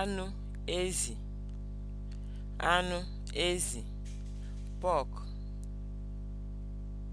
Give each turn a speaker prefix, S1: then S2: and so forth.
S1: anụ ezi anụ ezi (pork)